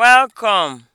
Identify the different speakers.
Speaker 1: welcome